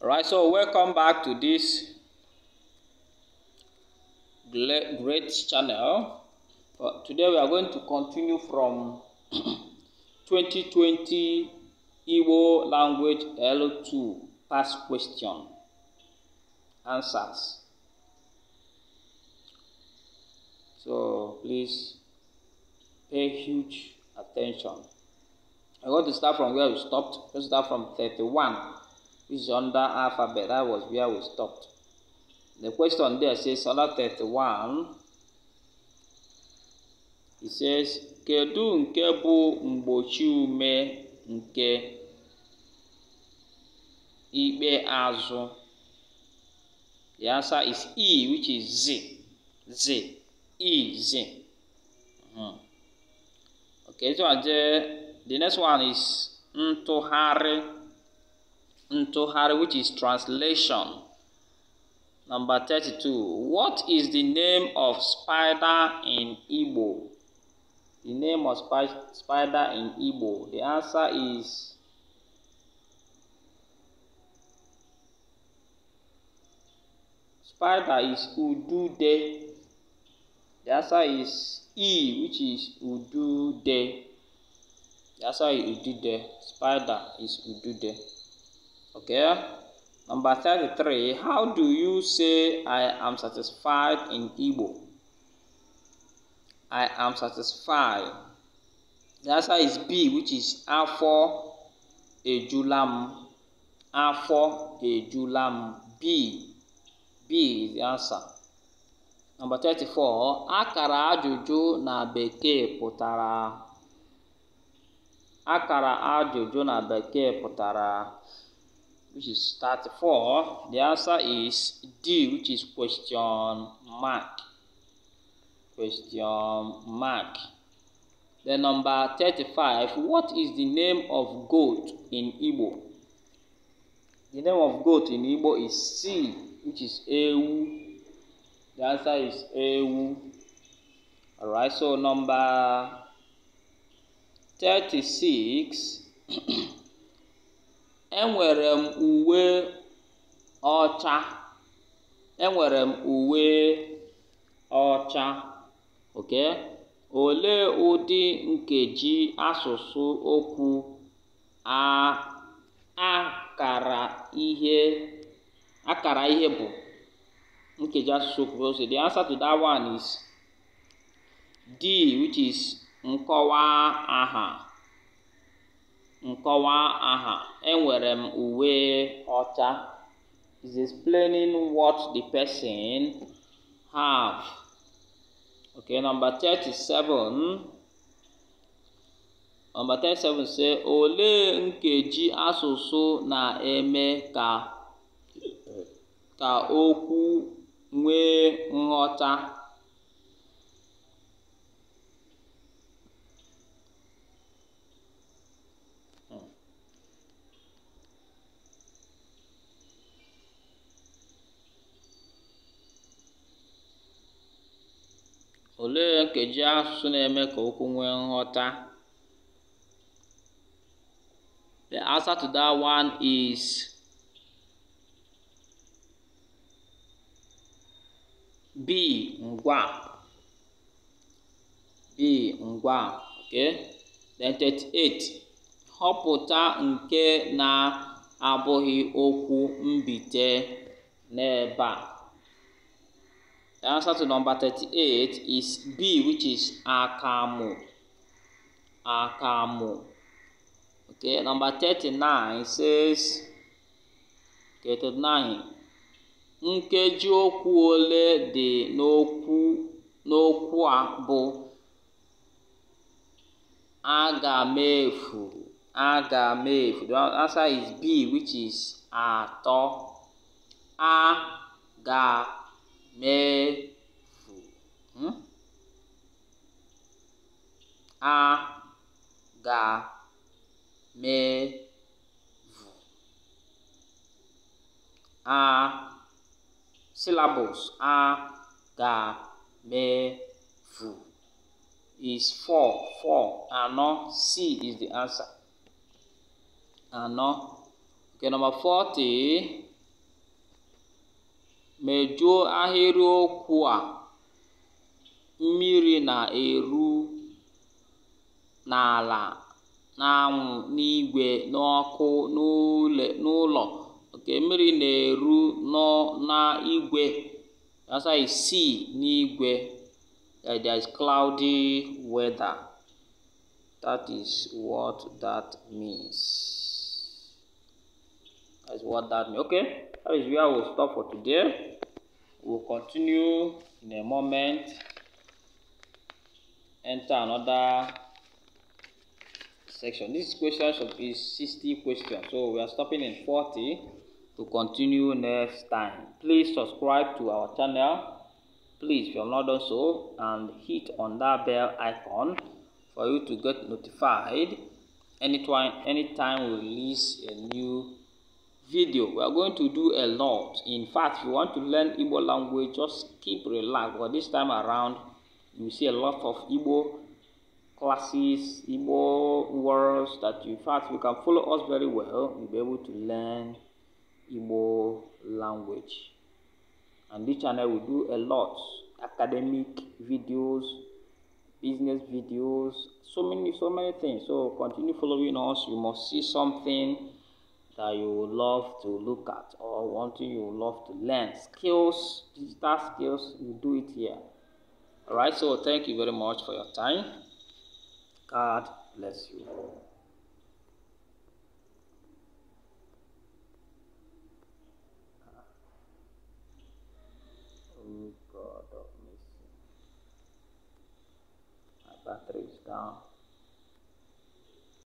Right, so welcome back to this great channel. But uh, today we are going to continue from 2020 Igbo language L2 past question answers. So please pay huge attention. I want to start from where we stopped. Let's start from 31. which is under alphabet. That was where we stopped. The question there says Salah 31. It says, Kedu nke bụ mgbochi ume nke ikpe azụ? The answer is E, which is Z. Z. E, Z. Mm -hmm. Okay, so the next one is ntụgharị. unto her, which is translation. Number 32. What is the name of spider in Igbo? The name of spider in Igbo. The answer is spider is Udude. The answer is E, which is Udude. The answer is Udude. Spider is Udude. Okay. Number 33. How do you say I am satisfied in Igbo? I am satisfied. The answer is B, which is Afọ Ejulam. Afọ Ejulam. B. B is the answer. Number 34. Akara ajuju na beke pụtara. Akara ajuju na beke pụtara which is 34, the answer is D, which is question mark. Question mark. Then number 35, what is the name of goat in Igbo? The name of goat in Igbo is C, which is Ewu. The answer is Ewu. All right. so number 36. enwere m uwe ọcha. Enwere m uwe ọcha. Okay? Olee ụdị nkeji asụsụ okwu a akara ihe akara ihe bụ? Nkeji asụsụ okwu so the answer to one is D which is nkọwa aha. nkọwa aha enwere m uwe ọcha is explaining what the person have okay number 37 number 37 say olee nkeji asụsụ na-eme ka ka okwu nwee nghọta Olee nkeji asụsụ na-eme ka okwu nwee nghọta? The answer to that one is B. Ngwa. B. Then 38. Họpụta nke na-abụghị okwu mbite n'ebe a. The answer to number 38 is B, which is Akamu. Akamu. Okay, number 39 says, okay, 39. Nkeji okwu ole dị n'okwu n'okwu a bụ aga m the answer is B which is atọ a ga mẹ́fù ún hmm? a ga mẹ́fù a syllables a ga mẹ́fù is four four àná c is the answer àná okay number forty. Mejuo ahịrịokwu a "Mmiri na-eru n'ala na n'igwe n'ọkụ n'ụlọ nke mmiri na-eru n'igwe (sea n'igwe) uh, there's cloudy weather, is what that means. That's what that means. Okay, that is where we'll stop for today. We'll continue in a moment. Enter another section. This question should be 60 questions. So we are stopping in 40 to continue next time. Please subscribe to our channel. Please, if you have not done so, and hit on that bell icon for you to get notified anytime anytime we release a new video we are going to do a lot in fact if you want to learn Igbo language just keep relaxed but this time around you see a lot of Igbo classes Igbo words that in fact you can follow us very well you'll be able to learn Igbo language and this channel will do a lot academic videos business videos so many so many things so continue following us you must see something that you love to look at or want you love to learn. Skills, digital skills, you do it here. Alright, so thank you very much for your time. God bless you. Oh God My battery is down.